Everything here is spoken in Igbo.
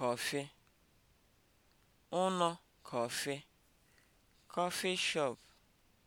kọfị, ụnọ kọfị, coffee shop